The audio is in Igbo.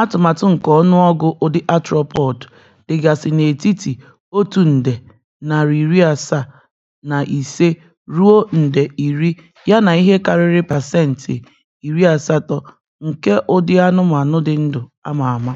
Atụmatụ nke ọnụọgụ ụdị arthropod dịgasị n'etiti otu nde narị iri asaa na ise ruo nde ya yana ihe karịrị pasentị iri asatọ nke ụdị anụmanụ dị ndụ ama ama.